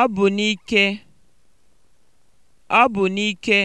Ọ bụ n'ike. Ọ bụ n'ike.